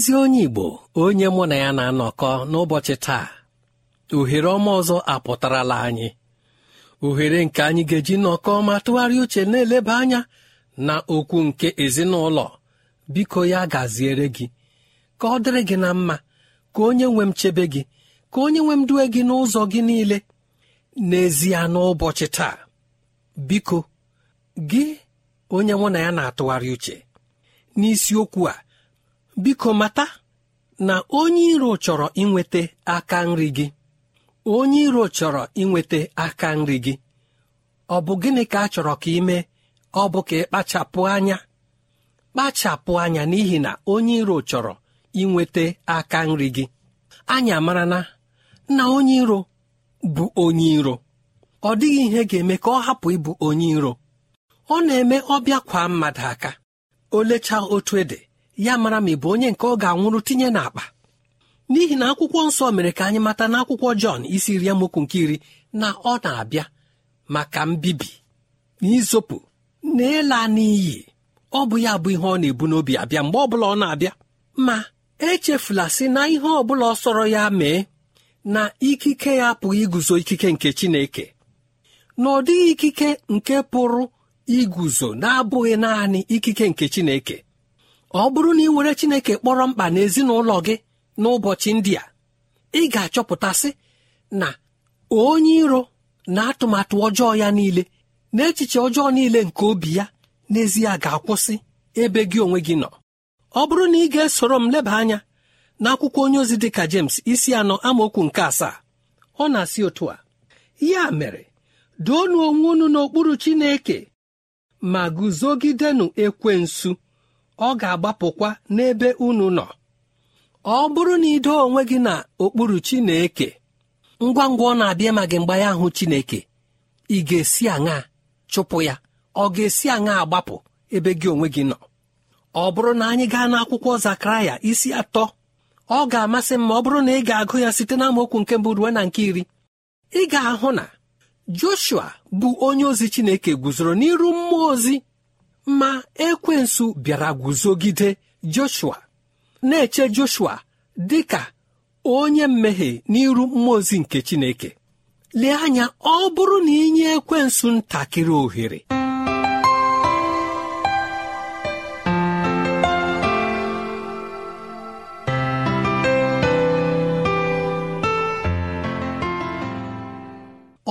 ezi onye igbo onye mụ na ya na-anọkọ n'ụbọchị taa ohere ọma ọzọ apụtarala anyị ohere nke anyị ga-eji nọkọ ma tụgharịa uche na-eleba anya na okwu nke ezinụlọ biko ya gaziere gị ka ọ dịrị gị na mma ka onye nwe m chebe gị ka onye nwe m due gị n'ụzọ gị niile n'ezie n'ụbọchị taa biko gị onye mụ na ya na-atụgharị uche n'isiokwu a biko mata na onye iro chọrọ inweta aka nri gị onye iro chọrọ inweta aka nri gị ọ bụ gịnị ka a chọrọ ka ị mee ọ bụ ka ị anya kpachapụ anya n'ihi na onye iro chọrọ inweta aka nri gị anya mara na na onye iro bụ onye iro ọ dịghị ihe ga-eme ka ọ hapụ ịbụ onye iro ọ na-eme ọbịa kwa mmadụ aka olechaa otu ede ya mara ma ị bụ onye nke ọ ga-anwụrụ tinye n'akpa n'ihi na akwụkwọ nsọ mere ka anyị mata na akwụkwọ jọn isi iri amokwu nke iri na ọ na-abịa maka mbibi na na ịla n'iyi ọ bụ ya bụ ihe ọ na-ebu n'obi abịa mgbe ọ bụla ọ na-abịa ma echefula si na ihe ọbụla ọ sọrọ ya mee na ikike ya apụghị iguzo ikike nke Chineke na ọ dịghị ikike nke pụrụ iguzo na-abụghị naanị ikike nke Chineke ọ bụrụ na ị were chineke kpọrọ mkpa n'ezinụlọ gị n'ụbọchị ndị a ị ga-achọpụtasị na onye iro na atụmatụ ọjọọ ya niile na echiche ọjọọ niile nke obi ya n'ezie ga-akwụsị ebe gị onwe gị nọ ọ bụrụ na ị ga-esoro m leba anya n'akwụkwọ onye ozi dịka James isi anọ amaokwu nke asaa ọ na-asị otu a ya mere doonu onwe unu n'okpuru Chineke ma guzogidenụ ekwensu ọ ga-agbapụkwa n'ebe unu nọ ọ bụrụ na idoo onwe gị na okpuru Chineke ngwa ngwa ọ na-abịa ma gị mgbe ya Chineke ị ga-esi aṅa chụpụ ya ọ ga-esi aṅa agbapụ ebe gị onwe gị nọ ọ bụrụ na anyị gaa n'akwụkwọ Zakaraya isi atọ ọ ga-amasị m ma ọ bụrụ na ị ga-agụ ya site na amaokwu nke mbụ ruo na nke iri ị ga-ahụ na Joshua bụ onye ozi Chineke guzoro n'iru mmụọ ozi ma ekwensu bịara guzogide joshua na-eche joshua dị ka onye mmehie n'iru mmụọ ozi nke chineke lee anya ọ bụrụ na inye ekwensu ntakịrị ohere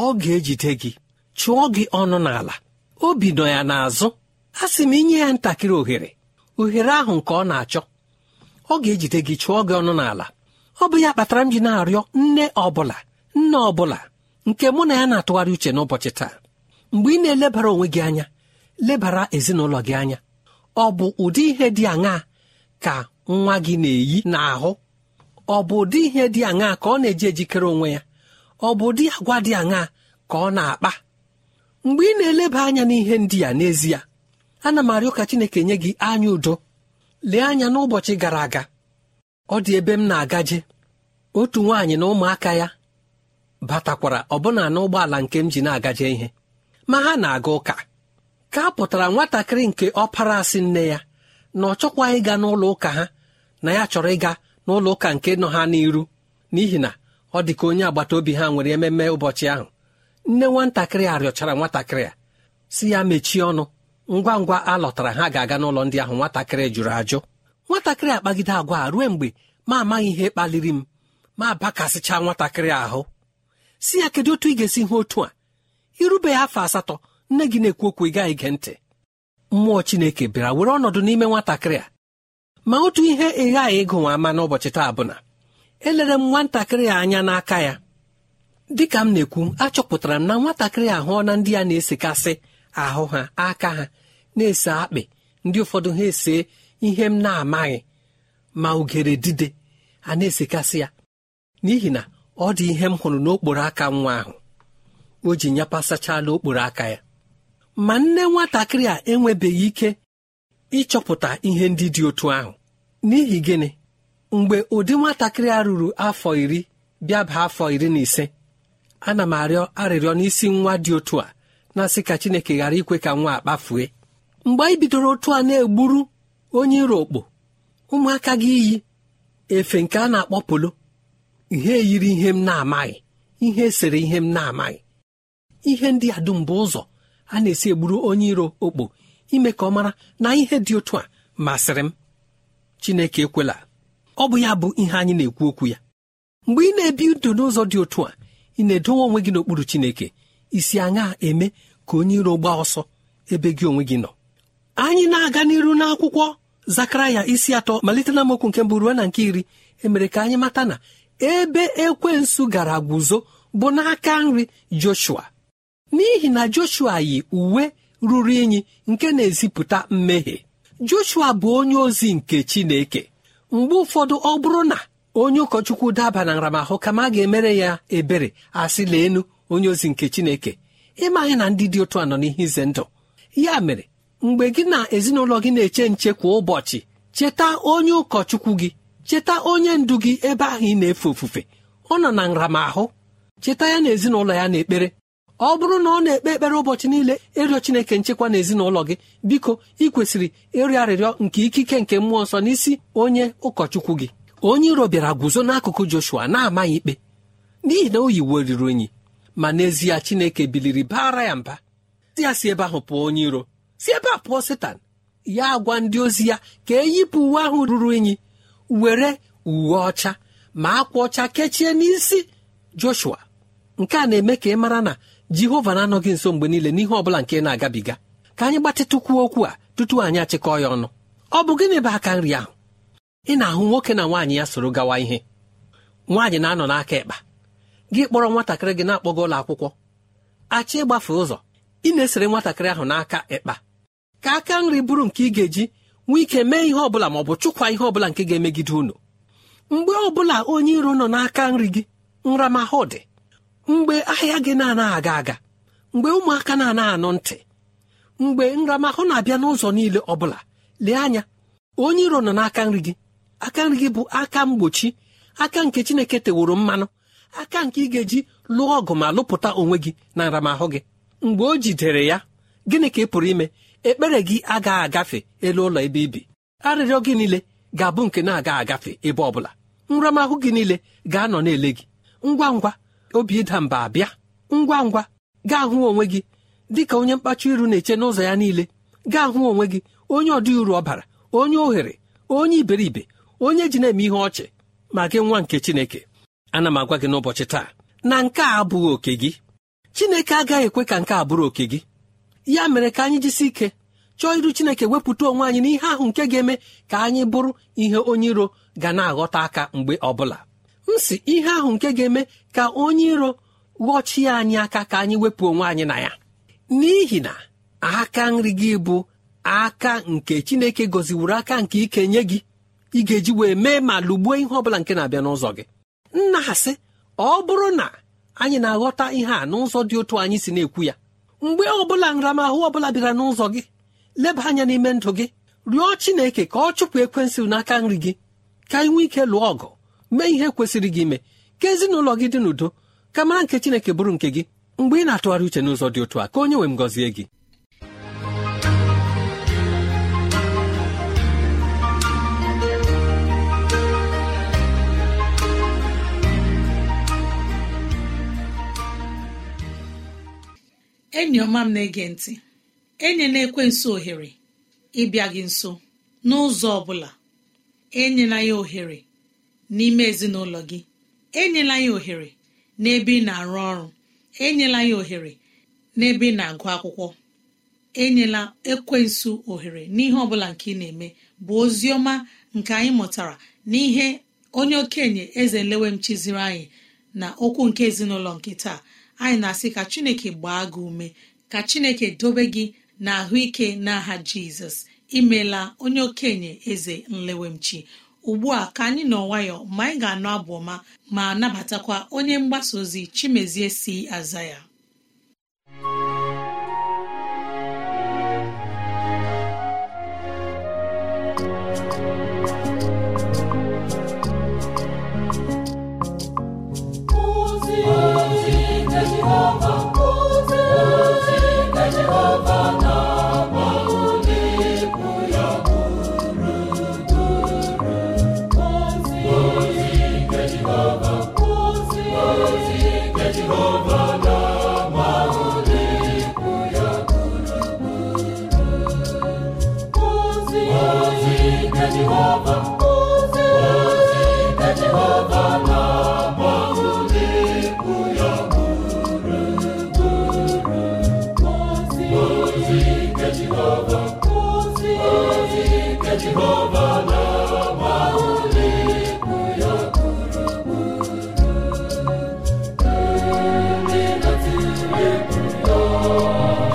ọ ga-ejide gị chụọ gị ọnụ n'ala obi nọ ya n'azụ a sị m inye ya ntakịrị ohere ohere ahụ nke ọ na-achọ ọ ga-ejide gị chụọ gị ọnụ n'ala ọ bụ ya kpatara m ji na-arịọ nne ọbụla nne ọbụla nke mụ na ya na-atụgharị uche n'ụbọchị taa mgbe ị na-elebara onwe gị anya lebara ezinụlọ gị anya ọ bụ ụdị ihe dị aṅaa ka nwa gị na-eyi n'ahụ ọ bụ ụdị ihe dị aṅaa ka ọ na-eji ejikere onwe ya ọ bụ ụdị agwa dị aṅaa ka ọ na-akpa mgbe ị na-eleba anya n'ihe ndị ya n'ezie ana m arịọ ka chineke nye gị anya udo lee anya n'ụbọchị gara aga ọ dị ebe m na-agaje otu nwaanyị na ụmụaka ya batakwara ọbụna n'ụgbọala nke m ji na-agaje ihe ma ha na-aga ụka ka a pụtara nwatakịrị nke ọpara asị nne ya na ọ chọkwaghị ịga n'ụlọ ụka ha na ya chọrọ ịga n'ụlọ ụka nke nọ ha n'iru n'ihi na ọ dị ka onye agbata obi ha nwere ememe ụbọchị ahụ nne nwatakịrị a rịọchara nwatakịrị a si ya mechie ọnụ ngwa ngwa a lọtara ha ga-aga n'ụlọ ndị ahụ nwatakịrị jụrụ ajụ nwatakịrị akpagide agwa a ruo mgbe ma amaghị ihe kpaliri m ma bakasịcha nwatakịrị ahụ si ya kedu otu ị ga-esi hụ otu a irubeghị afọ asatọ nne gị na-ekwu okwu ị gaghị ige ntị mmụọ chineke bịara were ọnọdụ n'ime nwatakịrị a ma otu ihe ị ghaghị ịgụnwa ama n'ụbọchị taa bụ na elere m nwatakịrị a anya n'aka ya dịka m na-ekwu achọpụtara m na nwatakịrị ahụ na ndị a na-esekasị ahụ ha aka ha na-ese akpị ndị ụfọdụ ha ese ihe m na-amaghị ma ugere dide a na-esekasị ya n'ihi na ọ dị ihe m hụrụ n'okporo aka nwa ahụ o ji nyapasachala n'okporo aka ya ma nne nwatakịrị a enwebeghị ike ịchọpụta ihe ndị dị otu ahụ n'ihi gịnị mgbe ụdị nwatakịrị a ruru afọ iri bịa baa afọ iri na ise ana m arịọ arịrịọ n'isi nwa dị otu a na-asị ka Chineke ghara ikwe ka nwa a kpafue mgbe anyị bidoro otu a na-egburu onye iro okpo ụmụaka gị iyi efe nke a na-akpọ polo ihe yiri ihe m na-amaghị ihe sere ihe m na-amaghị ihe ndị a dum bụ ụzọ a na-esi egburu onye iro okpo ime ka ọ mara na ihe dị otu a masịrị m Chineke ekwela ọ bụ ya bụ ihe anyị na-ekwu okwu ya mgbe ị na-ebi ndụ n'ụzọ dị otu a ị na-edowe onwe gị n'okpuru Chineke isi aṅa eme ka onye iro gbaa ọsọ ebe gị onwe gị nọ anyị na-aga n'iru n'akwụkwọ zakaraya isi atọ malite na mokwu nke mbụ ruo na nke iri emere ka anyị mata na ebe ekwensu gara guzo bụ n'aka nri joshua n'ihi na joshua yi uwe ruru unyi nke na-ezipụta mmehie joshua bụ onye ozi nke chineke mgbe ụfọdụ ọ bụrụ na onye ụkọchukwu daba na nramahụ kama ga-emere ya ebere asị leenu onye ozi nke chineke ịmaghị na ndị dị otu a nọ n'ihe ize ndụ ya mere mgbe gị na ezinụlọ gị na-eche nche kwa ụbọchị cheta onye ụkọchukwu gị cheta onye ndu gị ebe ahụ ị na-efe ofufe ọ nọ na nramahụ cheta ya na ezinụlọ ya n'ekpere ọ bụrụ na ọ na-ekpe ekpere ụbọchị niile ịrịọ chineke nchekwa na ezinụlọ gị biko ị kwesịrị ịrịọ arịrịọ nke ikike nke mmụọ nsọ n'isi onye ụkọchukwu gị onye iro bịara guzo n'akụkụ Joshua na-amaghị ikpe n'ihi na o yiweriri onyi ma n'ezie Chineke biliri baara ya mba ya si ebe ahụ pụọ onye iro si ebe a pụọ setan ya agwa ndị ozi ya ka eyipụ uwe ahụ ruru unyi were uwe ọcha ma akwa ọcha kechie n'isi joshua nke a na-eme ka ị mara na jehova na-anọghị nso mgbe niile n'ihe ọ bụla nke na-agabiga ka anyị gbatịtụkwuo okwu a tutu anyị achịkọ ya ọnụ ọ bụ gịnị bụ aka nri ahụ ị na-ahụ nwoke na nwaanyị ya soro gawa ihe nwaanyị na-anọ n'aka ịkpa gị kpọrọ nwatakịrị gị na-akpọga ụlọ akwụkwọ achị ịgbafe ụzọ ị na-esere nwatakịrị ahụ n'aka ekpa ka aka nri bụrụ nke ị ga-eji nwee ike mee ihe ọbụla ma ọ bụ chụkwa ihe ọbụla nke ga-emegide unu mgbe ọ bụla onye iro nọ n'aka nri gị nramahụ dị mgbe ahịa gị na-anaghị aga aga mgbe ụmụaka na-anaghị anụ ntị mgbe nramahụ na-abịa n'ụzọ niile ọ bụla lee anya onye iro nọ n'aka nri gị aka nri gị bụ aka mgbochi aka nke chineke teworo mmanụ aka nke ị ga-eji lụọ ọgụ ma lụpụta onwe gị na nramahụ gị mgbe o jidere ya gịnị ka ị pụrụ ime ekpere gị agaghị agafe elu ụlọ ebe ibi arịrịọ gị niile ga-abụ nke na-aga agafe ebe ọ bụla nramahụ gị niile ga-anọ na-ele gị ngwa ngwa obi ịda mba abịa ngwa ngwa gaa hụ onwe gị dị ka onye mkpachi iru na-eche n'ụzọ ya niile gaa hụ onwe gị onye ọdị uru ọbara onye ohere onye iberibe onye ji na-eme ihe ọchị ma gị nwa nke Chineke ana m agwa gị n'ụbọchị taa na nke a abụghị oke gị Chineke agaghị ekwe ka nke a bụrụ oke gị ya mere ka anyị jisi ike chọọ iru chineke wepụta onwe anyị n'ihe ahụ nke ga-eme ka anyị bụrụ ihe onye iro ga na-aghọta aka mgbe ọbụla m si ihe ahụ nke ga-eme ka onye iro ghọchie anyị aka ka anyị wepụ onwe anyị na ya n'ihi na aka nri gị bụ aka nke chineke gọziwuru aka nke ike nye gị ị ga-eji wee mee ma lụgbuo ihe ọ bụla nke na-abịa n'ụzọ gị nna asị ọ bụrụ na anyị na-aghọta ihe a n'ụzọ dị otu anyị si na-ekwu ya mgbe ọ ọbụla nramahụ ọbụla bịara n'ụzọ gị leba anya n'ime ndụ gị rịọ chineke ka ọ chụpụ ekwensị n'aka nri gị ka ị nwee ike lụọ ọgụ mee ihe kwesịrị gị ime ka ezinụlọ gị dị n'udo ka mara nke chineke bụrụ nke gị mgbe ị na-atụgharị uche n'ụzọ dị otu a ka onye nwee m gọzie gị enyi ọma m na-ege ntị enyela ekwensu ohere ịbịa gị nso n'ụzọ ọ bụla enyela ya ohere n'ime ezinụlọ gị enyela ya ohere n'ebe ị na-arụ ọrụ enyela ya ohere n'ebe ị na-agụ akwụkwọ enyela ekwensu ohere n'ihe ọ bụla nke ị na-eme bụ ozi ọma nke anyị mụtara n'ihe onye okenye eze m chiziri anyị na okwu nke ezinụlọ nke taa anyị na-asị ka chineke gbaa gị ume ka chineke dobe gị na ahụike n'aha jizọs imela onye okenye eze nlewemchi ugbu a ka anyị nọ nwayọ ma anyị ga anọ abụ ọma ma nabatakwa onye mgbasa ozi chimezie si aza ya Oh.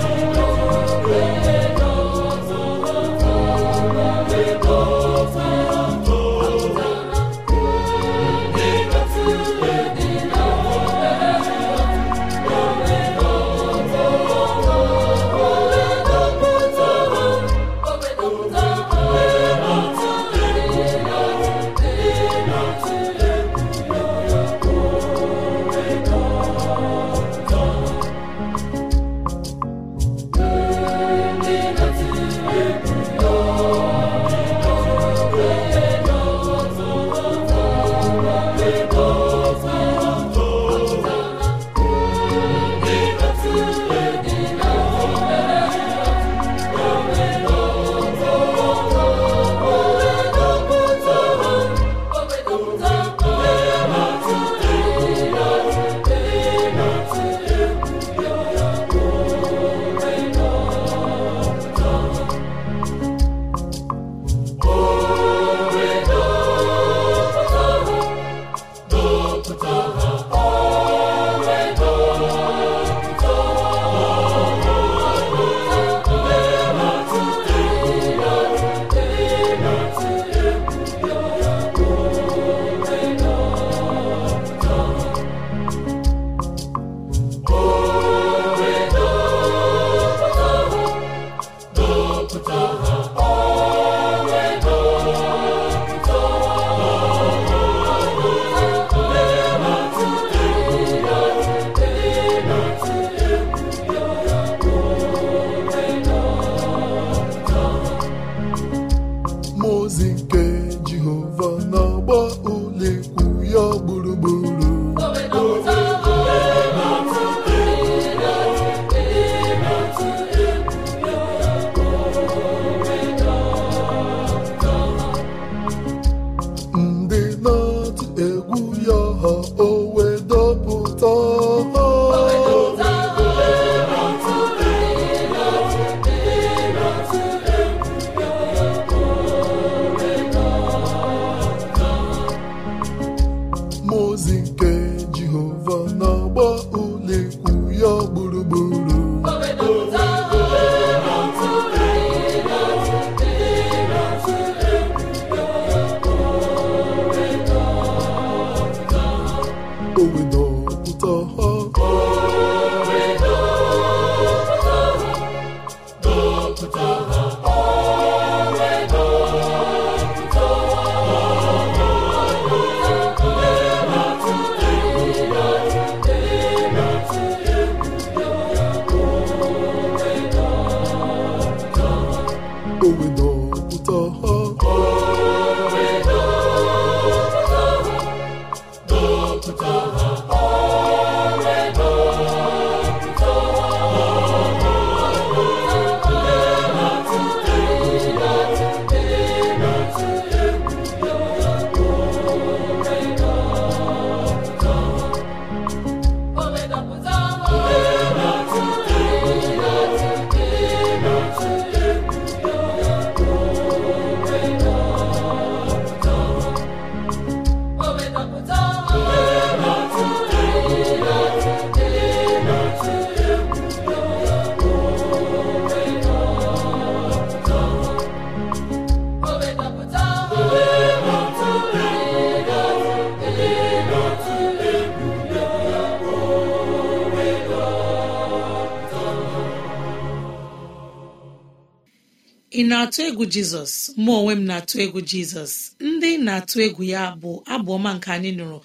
ị na-atụ egwu jizọs mụ onwe m na-atụ egwu jizọs ndị na-atụ egwu ya bụ abụọma nke anyị nụrụ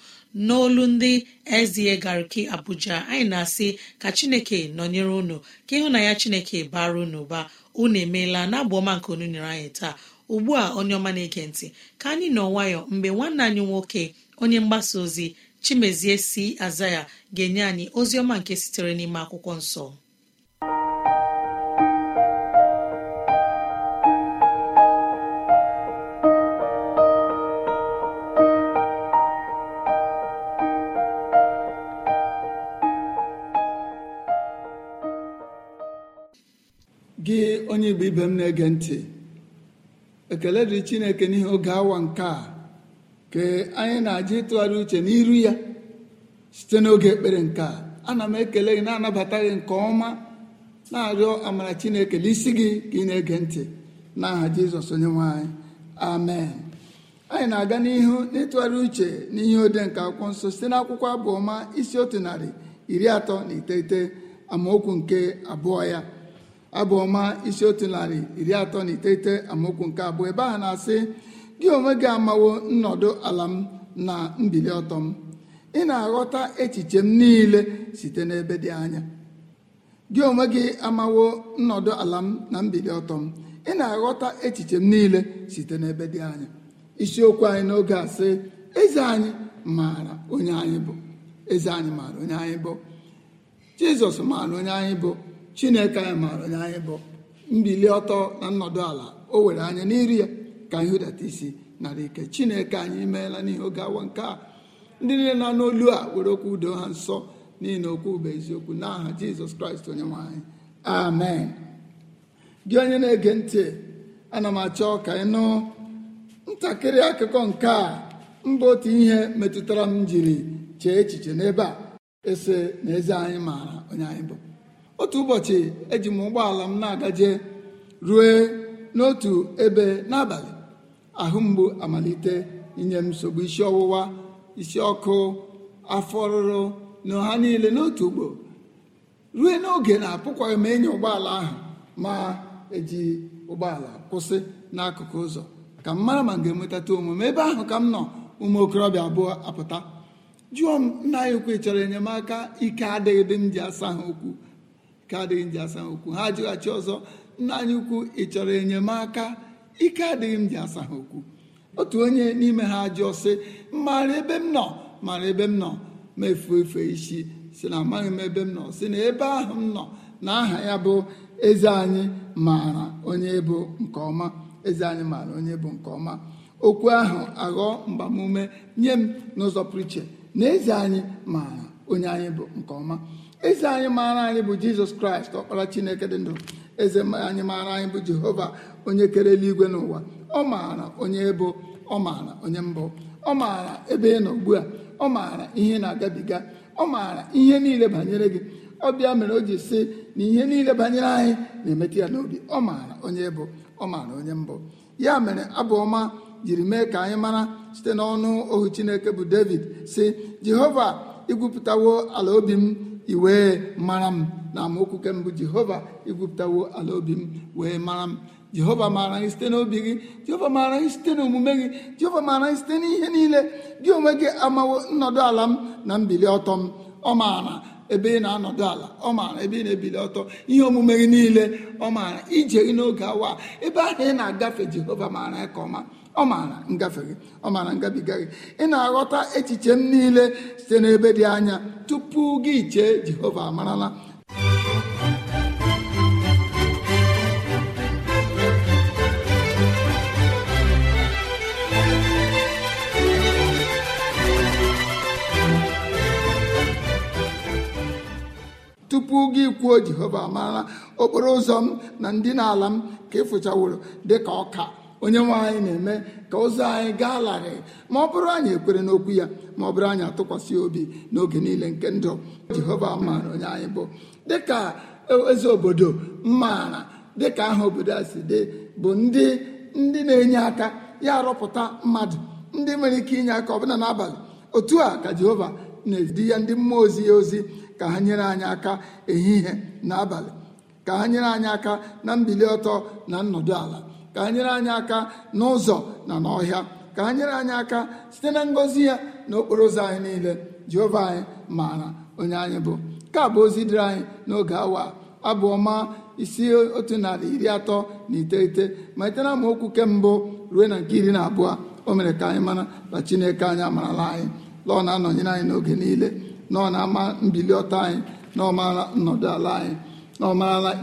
n'olu ndị ezie gariki abuja anyị na-asị ka chineke nọnyere unu ka ịhụ na ya chineke bara unu baa unu emeela na abụọma nke unu nyere anyị taa ugbu a onye ọma na-ege ntị ka anyị nọ nwayọ mgbe nwanne anyị nwoke onye mgbasa ozi chimezie si aza ya ga-enye anyị ozi ọma nke sitere n'ime akwụkwọ nsọ igbo ibe m na-ege ntị ekele dị chineke n'ihi oge awa nke a ka anyị na-aja ịtụgharị uche n'iru ya site n'oge ekpere nke a ana m ekele gị na-anabata gị nke ọma na-arịọ amara chineke n'isi gị ka ị na-ege ntị na aha jizọs onye nwe anyị amen anyị na-aga n'ihu n'ịtụgharị uche n'ihe ode nke akwụkwọ nsọ site n'akwụkwọ abụọma isi otu narị iri atọ na iteghete amaokwu nke abụọ ya abụọma ọma isi otu narị iri atọ na iteghete amaokwu nke abụọ ebe a na-asị gị onwe gị amawo nnọdụ ala m na mbili ọtọ m ị na-aghọta echiche m niile site n'ebe dị anya gị onwe gị nnọdụ ala na mbili ọtọ ị na-aghọta echiche m niile isiokwu anyị n'oge a sị eze anyị maara onye anyị bụ eze maara onye anyị bụ chineke anyị maara onye anyị bụ mbili ọtọ na nnọdụ ala o were anya n'iri ya ka anyị hụdata isi nara ike chineke anyị meela n'ihe oge awa nke a ndị niile na n'olu a were okwu udo ha nsọ n'ihi na okwu bụ eziokwu n'aha jizọs kraịst onye nwanyị amen gị onye na-ege ntị ana m achọ ka ị nụ ntakịrị akụkọ nke a mbụ otu ihe metụtara m jiri chee echiche n'ebe a ese na eze anyị maara onye anyị bụ otu ụbọchị eji m ụgbọala m na-agaje rue n'otu ebe n'abalị ahụ mgbu amalite inye m nsogbu isi ọwụwa isi ọkụ afọ ọrụrụ na ha niile n'otu ugbo rue n'oge na-apụkwaghị m ịnya ụgbọala ahụ ma eji ụgbọala kwụsị n'akụkụ ụzọ ka m mara ma m ga-enwetata omume ebe ahụ ka m nọ ụmụ okorobịa abụọ apụta jụọ m nna ya ukwu chọrọ enyemaka ike adịghị dị m ji asa ha okwu ka adịghị m asa okwu ha ajụghachi ọzọ nna anyị ukwu ị chọrọ enyemaka ike adịghị m ji asa ha okwu otu onye n'ime ha ajụọ sị mara ebe m nọ mara ebe m nọ ma efu efe isi si na amaghị m ebe m nọ si na ebe ahụ m nọ na aha ya bụ eze anyị maara onye bụ nke ọma eze anyị maara onye bụ nke ọma okwu ahụ aghọọ mgbamume nye m n'ụzọ pụrụ iche na eze anyị maara onye anyị bụ nke ọma eze anyị maara anyị bụ jizọs kraịst ọkpara chineke dị ndụ eze anyị maara anyị bụ jehova onye kere eluigwe n'ụwa ọ maara onye ebo ọ maara onye mbụ ọ maara ebe ị nọ ugbu a ọ maara ihe na-agabiga ọ maara ihe niile banyere gị ọ bịa mere o ji sị na ihe niile banyere anyị na-emetụ ya n'obi ọ maara onye bụ ọ maara onye mbụ ya mere abụ ọma jiri mee ka anyị mara site n'ọnụ ohu chineke bụ david si jehova igwupụtawo ala obi m iwee mara m na amaokwu nke mbụ jehova igwupụtawo ala obi m wee mara m jehova maara gị site n'obi gị jehova maara gị site n'omume gị jehova maara gị site n'ihe niile gị onwe gị amawo nnọdụ ala m na mbili ọtọ m ọ maara ebe ị na-anọdụ ala ọ maara ebe ị na-ebili ọtọ ihe omume gị niile ọ maara ije gị n'oge awa ebe ahụ ị na-agafe jehova maara ya ka ọma ọ maara ngafe gị ọ maara ngabiga gị ị na-aghọta echiche m niile site n'ebe dị anya tupu tupu gị chee jehova amarala tupu gị kwuo jehova amarala okporo ụzọ m na ndị na ala m ka ịfụchaworo dịka ọka onye nwe anyị na-eme ka ụzọ anyị gaa larịị ma ọ bụrụ anyị ekwere n'okwu ya ma ọ bụrụ anyị atụkwasị obi n'oge niile nke ndụ jehova maara onye anyị bụ dịka eze obodo maara dịka aha obodo a si dị bụ ndị ndị na-enye aka ya arụpụta mmadụ ndị nwere ike inye aka ọbụla n'abalị otu a ka jehova na-edi ya ndị mmụọ ozi ya ozi ka ha nyere anyị aka ehihie na abalị ka ha nyere anyị aka na mbili ọtọ na nnọdụ ala ka ha nyere anyị aka n'ụzọ na n'ọhịa ka ha nyere anyị aka site na ngọzi ya na okporo ụzọ anyị niile jehova anyị maara onye anyị bụ nke bụ ozi dịrị anyị n'oge awa abụọ ma isi otu narị iri atọ na iteghete ma na amaokwu nke mbụ ruo na nke iri na abụọ o mere ka anyị mara na chineke anyị amarala anyị lọọ na-anọnyere anyị n'oge niile na ọ na-ama mbili ọtọ anyị na ọ maara nnọdụ ala anyị na ọ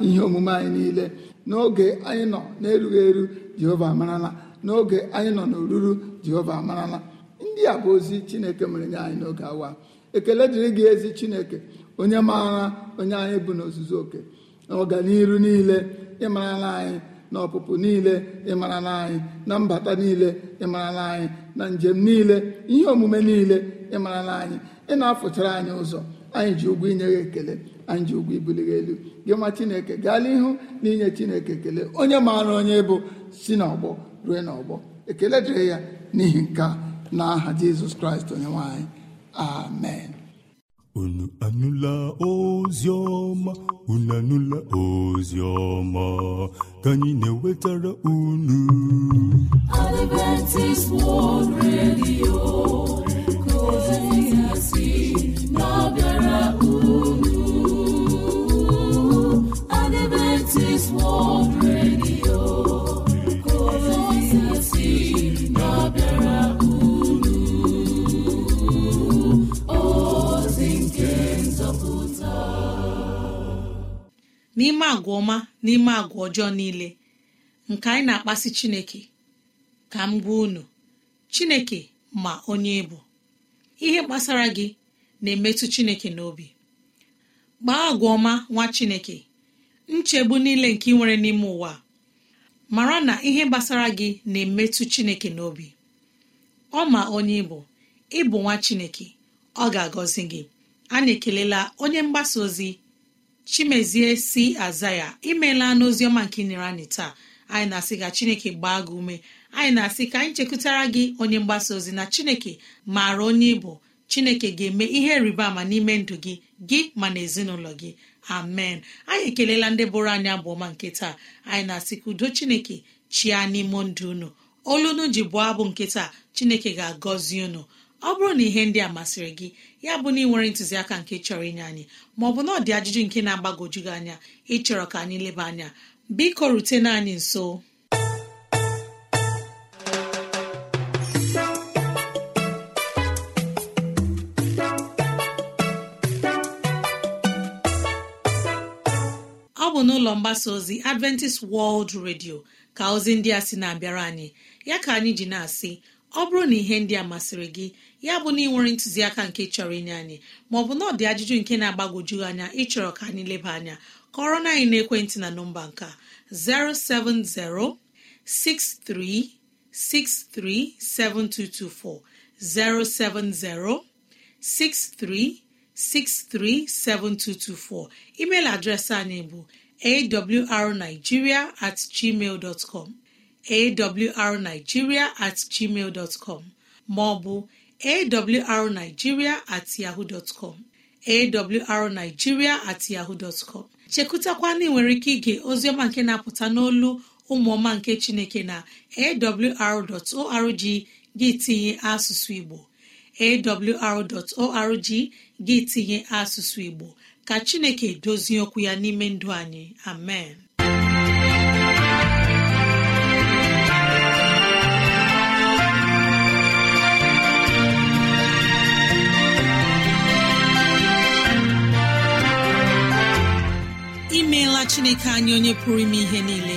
ihe omume anyị niile n'oge anyị nọ n'erughị eru jehova amarala n'oge anyị nọ n'oruru jehova amarala ndị a bụ ozi chineke mere nye anyị n'oge awa ekele dịrị gị ezi chineke onye maara onye anyị bụ n'ozuzu oke na ọganiru niile ịmarala anyị na ọpụpụ niile ịmarala anyị na mbata niile ịmarala anyị na njem niile ihe omume niile ịmarala anyị ị na-afụchara anyị ụzọ anyị ji ụgwọ inye ya ekele anyị ji ụgwọ ibuli elu gị ma chineke gaala ihu na inye chineke ekele onye maara onye bụ si n'ọgbọ rue n'ọgbọ ekele dịrị ya n'ihi nke a na aha jizọs kraịst onye nwanyị amen unu anụla ozi ọma unu anụla ozi ọma ka anyị na-ewetara unu Adventist World Radio ka ozi si n'ime agwa ọma n'ime agwa ọjọọ niile nke anyị na-akpasi chineke ka m gwa unu chineke ma onye bụ ihe gbasara gị na-emetụ chineke n'obi gbaa agwa ọma nwa chineke nchegbu niile nke ị nwere n'ime ụwa mara na ihe gbasara gị na-emetụ chineke n'obi ọ ma onye ịbụ ịbụ nwa chineke ọ ga-agọzi gị anyị ekelela onye mgbasa ozi chimezie si aza ya imeela n'oziọma nke nyere anyị taa anyị na-asị ka chineke gbaa gị ume anyị na-asị ka anyị chekwutara gị onye mgbasa ozi na chineke maara onye ịbụ chineke ga-eme ihe rịba ama n'ime ndụ gị gị ma na ezinụlọ gị amen anyị ekelela ndị bụrụ anyị abụọma nke taa anyị na-asị ka udo chineke chia n'ime ndụ unu olunu ji bụọ abụ nke taa chineke ga-agọzi unu ọ bụrụ na ihe ndị a masịrị gị ya bụ na ị nwere ntụziaka nke chọrọ inye anyị maọbụ na ọ dị ajụjụ nke na-agbagojugị anya ịchọrọ ka anyị leba anya biko rutena anyị nso ụlọ mgbasa ozi adventist world radio ka ozi ndị a sị na-abịara anyị ya ka anyị ji na-asị ọ bụrụ na ihe ndị a masịrị gị ya bụ na ị nwere ntụziaka nke chọrọ inye anyị maọbụ na ọ ajụjụ nke na-agbagwoju anya ịchọrọ ka anyị leba anya kọrọ na anyị naekwentị na nọmba nka 07063637224 0706363724 email adreesị anyị bụ awrnigeria at gmail dọtcọm awrnigeria at gmail maọbụ awrnigeria at yahoo dọtcọm awrnigeria at yahoo dọtcọm chekụtakwana ike ige oziọma nke na-apụta n'olu ụmụọma nke chineke na awr.org gị tinye asụsụ igbo awr.org gị tinye asụsụ igbo ka chineke dozie okwu ya n'ime ndụ anyị amen imeela chineke anyị onye pụrụ ime ihe niile